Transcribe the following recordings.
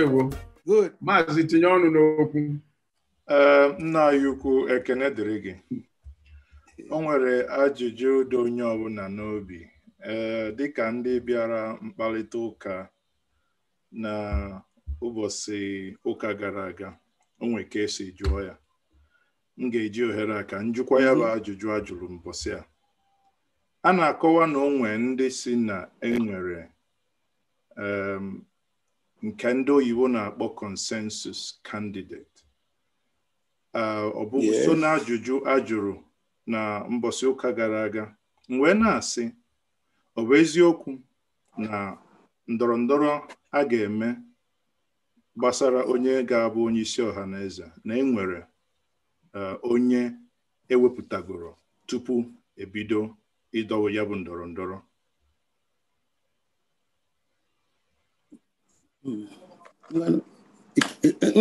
ndewo maazị tinye ọnụ n'okwu eh, nna anyị ukwu ekene dịrị gị o nwere ajụjụ dị onye ọbụla n'obi ee eh, dịka ndị bịara mkparịta ụka na ụbọchị ụka gara aga o nwere ka esi jụọ ya m ga-eji ohere aka ka njụkwa ya bụ mhm. ajụjụ ajụrụ mbọsị a a na-akọwa na onwe ndị si na enwere nke ndị oyibo na-akpọ consensus candidate uh, ọ bụ so na ajụjụ a jụrụ na mbọsị ụka gara aga mgbe na-asị ọ bụ eziokwu na ndọrọ ndọrọ a ga-eme gbasara onye ga-abụ onye isi ọha na eze na enwere uh, onye ewepụtagoro tupu ebido ịdọwa ya bụ ndọrọ ndọrọ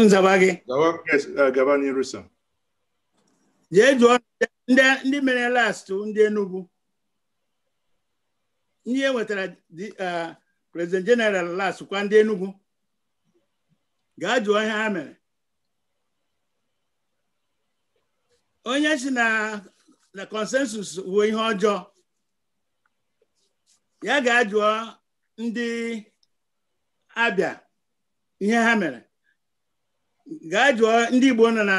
nzaba gị gaba n'iru sir jee jụọ ndị mere last ndị Enugu Ndị enwetara uh, president general last kwa ndị Enugu gaa jụọ ihe ha mere onye si na na consensus wuo ihe ọjọọ ya ga-ajụọ ndị abịa ihe ha mere gaa jụọ ndị Igbo nọ na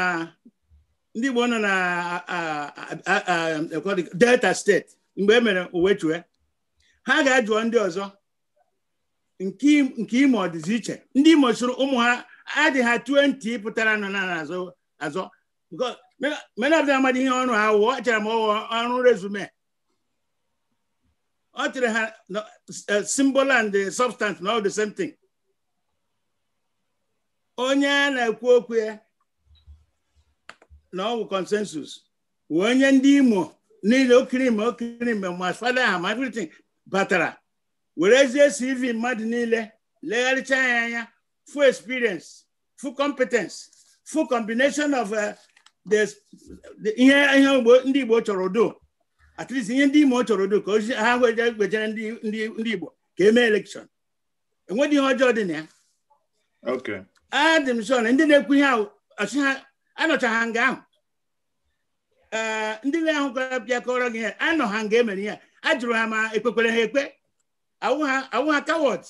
ndị Igbo nọ na Delta steeti mgbe e mere uwechue ha ga-ajụọ ndị ọzọ nke ime ọ dịzi iche ndị Imo sụrụ ụmụ ha adịghị ha 20 pụtara nọ na azọ azọ menabda amadị ihe ọrụ ha wụọ chara m ọrụ rezume ọ chere ha eh, symbol and substance na all the same thing onye na-ekwu okwu ya na ọgwụ bụ consensus wee onye ndị Imo niile okiri ime okiri ime ma fada ha ma everything were werezie CV mmadụ niile legharịcha ya anya full experience full competence full combination of uh, ihe ndị Igbo chọrọ do at least ihe ndị Imo chọrọ do ka ozi ha gwejere ndị Igbo ka emee elekshọn enweghị ihe ọjọọ dị na ya adị m sọ na ndị na-ekwu ihe ọchị ha anọcha ha nga ahụ eh, ndị na-ahụkọrọ bịa kọrọ gị ihe anọ ha nga emere ihe a jụrụ ha ma ekpekwere ha ekpe awụ ha kawọt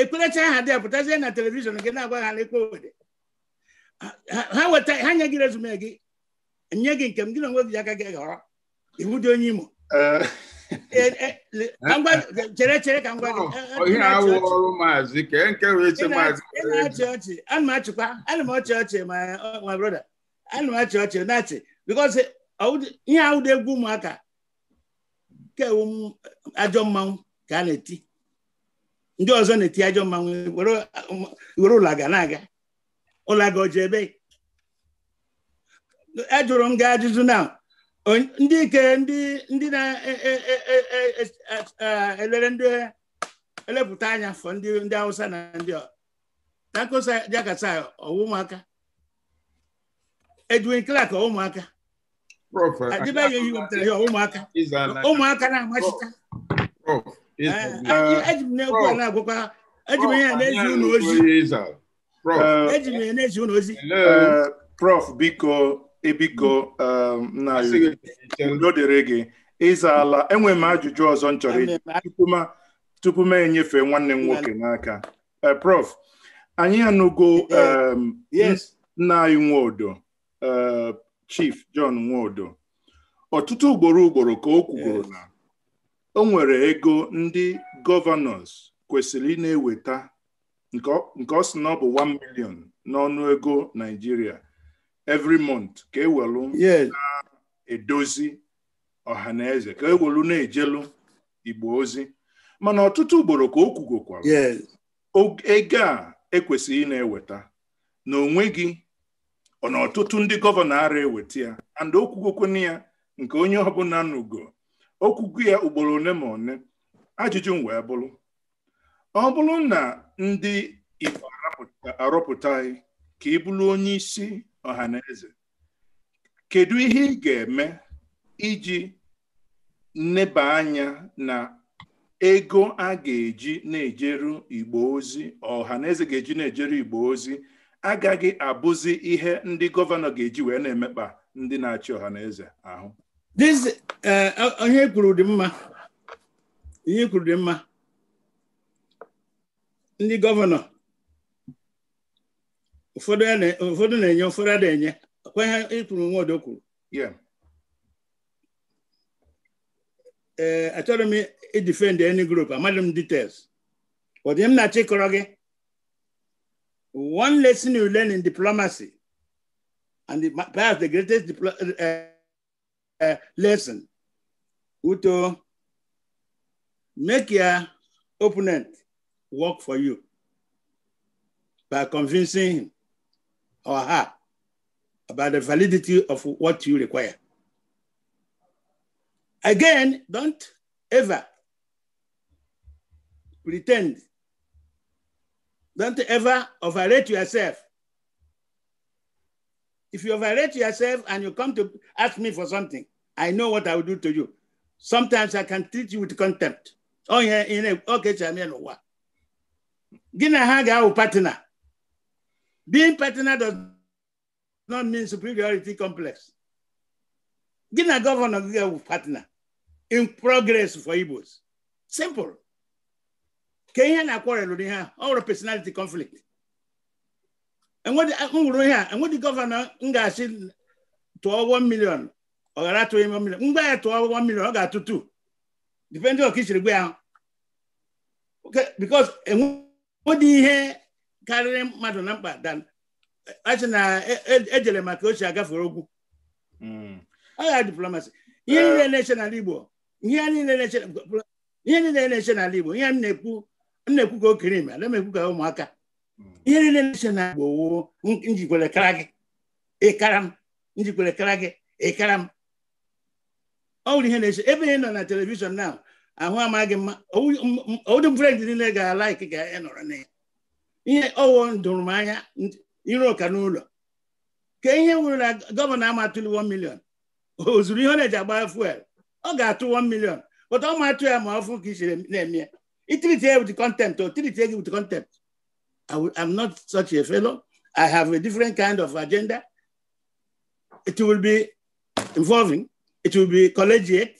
ekperecha ha dị apụtazie na telivishọn gị na-agwa ha na ekpe ha weta ha nye gị rezume gị nye gị nke m gị na onwe gị aka gị ghọrọ iwu dị onye imo eh, Eh, eh, eh, chere chere ka m gwa gị ọrụ maazị ke nke eche maazị na-achị ọchị ana m achịkwa ana m ọchị ọchị ma broda ana m achị ọchị na-achị bikọs ihe ahụ egwu ụmụaka kewu ajọ mmanwụ ka a na-eti ndị ọzọ na-eti ajọ mmanwụ were ụlọaga na-aga ụlaga ọjọ ebe ajụrụ e m gaa ajụjụ na ndị ike ndị na-elere e, e, e, ndị elepụta anya fọ ndị na ndị Takosa Jakasa ọwụ Edwin Clark ụmụaka na-amachita m na a eji m ozi eji na-ezi ozi Ebiko um, na o dere gị ịzaala enwe m ajụjụ ọzọ m chọrọ tupu m enyefe nwanne m nwoke n'aka eh, prof anyị anụgo um, nna anyị eh, chief John nwodo ọtụtụ ugboro ugboro ka o kwugoro na o nwere ego ndị gọvanọs kwesịrị ịna na-eweta nke ọ sị na ọ bụ 1 million n'ọnụ ego Naịjirịa every month ka ewelu edozi ọha na eze ka ewelu na-ejelu igbo ozi mana ọtụtụ ugboro ka o kwugokwara ego a ekwesịghị na-eweta na onweghị na ọtụtụ ndị gọvanọ ara eweta ya and okwugokwana ya nke onye ọbụla n'ugo okwugo ya ugboro ole ma one ajụjụ wee bụrụ ọ bụrụ na ndị igbo arọpụta ka ị bụrụ onye isi ọha na kedu ihe ị ga-eme iji nneba anya na ego a ga-eji na-ejeru igbo ozi ọha ga-eji na-ejeru igbo ozi agaghị abụzi ihe ndị gọvanọ ga-eji wee na-emekpa ndị na-achị ọha eze ahụ ihe eh, kwuru dị mma ihe kwuru dị mma ndị gọvanọ ụfọdụ na-enye ụfọdụ ada enye kwa ihe ịkwuru nwodo kwuru ee eh, any group amadị m details But dị m na one lesson you learn in diplomacy and the, perhaps the greatest uh, uh, lesson Uto, make your opponent work for you by convincing him or her about the validity of what you require. Again, don't ever pretend. Don't ever overrate yourself. If you overrate yourself and you come to ask me for something, I know what I will do to you. Sometimes I can treat you with contempt. Oh, yeah, in a okay, Gina Haga partner. being pertinent does not mean superiority complex. Gị na gọvanọ gị ga partner in progress for Igbos simple ka ihe na-akwarelụ ihe ahụ ọ nwere personality conflict nwụrụ ihe a enwedị gọvanọ m ga-asị tụọ 1 million ọ ghara atụ ime million mgbe ya tụọ 1 million ọ ga-atụ 2 depending on ka i siri gwa because enwedị ihe karịrị mmadụ na mkpa dan achị na ejere e, e maka ochie agafere okwu agha hmm. diplomasi ihe eh. niile na-eche n'ala Igbo ihe niile na-eche na. Ihe niile na-eche n'ala Igbo ihe m na-ekwu m na-ekwu ka okere ime ala m ekwu ka ụmụaka hmm. ihe niile na-eche na Igbo wo njikwere kara gị ịkara m njikwere kara gị ịkara m ọ wụrụ ihe na-eche ebe ị nọ na telivishọn na ahụ amaghị mma owudị mfrend niile ga-alaiki ga-enọrọ na ya ihe owo dụrụ m anya ire ụka n'ụlọ ka ihe nwere na gọvanọ amatụli 1 million o zuru ihe ọ na-eji agba fuel ọ ga-atụ 1 million bụta ọ matụ ya ma ọfụ ka i chere na-eme itiriti ya with contempt o tiriti gị with contempt am not such a fellow I have a different kind of agenda it will be involving it will be collegiate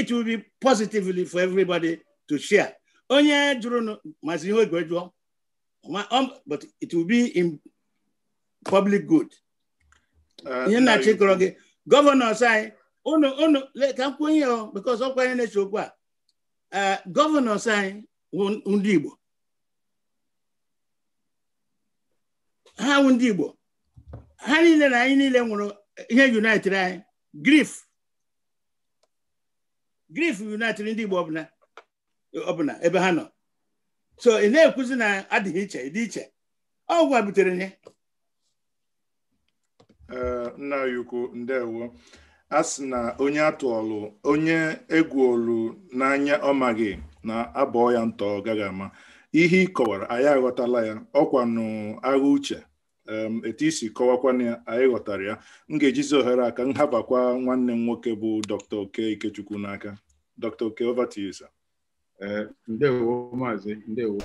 it will be positively for everybody to share onye jụrụ mazi ihe oge jụọ Um, but it will be in public good uh, ihe nna chịkọrọ gị gọvanọs a uh, gọvanọs anyị wụ ndị ha wụ ha niile na anyị niile nwụrụ ihe united anyị grif grif united ndị Igbo ọbụla ebe ha nọ so ị na-ekwuzi na adịghị iche dị iche ọ gwa butere ya nna a sị na onye atụọlụ onye egwuolu n'anya ọ maghị na abụọ ya ntọ gaghị ama ihe ị kọwara anyị aghọtala ya ọkwanụ agha uche etu isi kọwakwana ya anyị ghọtara ya m ga-ejizi ohere aka nhabakwa nwanne m nwoke bụ dr oke ikechukwu n'aka Eh, ndewo maazị ndewo